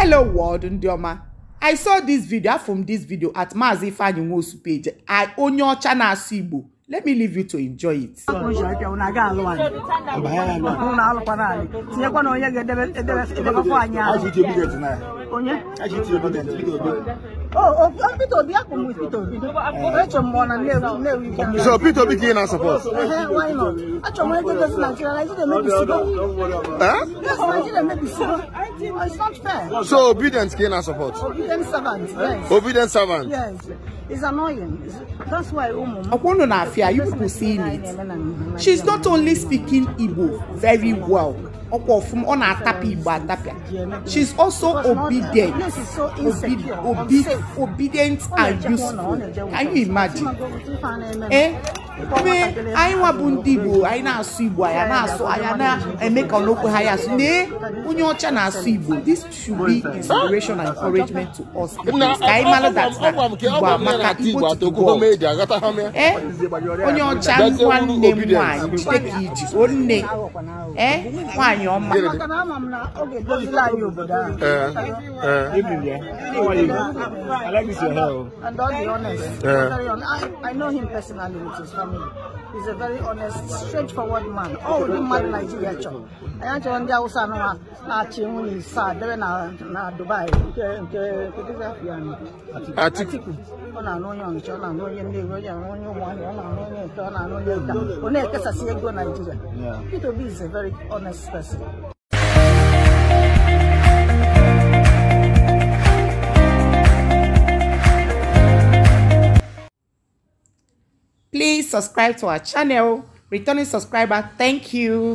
hello world ndị ọma i saw this video from this video at Mazi Ifeanyi Nwosu page I own your channel, Igbo let me leave you to enjoy it. So Peter Obi can support. Why not? Actually, Nigeria, Nigeria, maybe. Huh? Nigeria, maybe it's not fair. So obedient, gain our support. Obedient servant, yes. Obedient servant. Yes. It's annoying. that's why Umu. I wonder, our fear, you people seeing it. She's not only speaking Igbo very well ọkwa ọfụma ọ na-atapịa igbo she is also obedient obi obedient and useful can you imagine eh mee anyị nwa bụ ndị igbo anyị na-asụ igbo anyị na-asụ anyị na-eme ka ọnokwu ha ya asụ nee onye ọcha na-asụ igbo this should be inspiration and encouragement to us ka anyị mara that igbo amaka igbo to go eh onye ọcha nwa nne m nwaanyị jide ka iji onne eh nwaanyị anyị ọma maka na ama m na ọ ga-edozila anyị obodo ahụ and all the honest I know him personally with his family he's a very honest straightforward man ọ ụdị mmadụ Naijiria chọrọ anyị achọrọ ndị Hausa anụwa na-achị nwunye isaa debe na Dubai nke Atiku ọ̀nà very honest person. Please subscribe to our channel. Returning subscriber, thank you.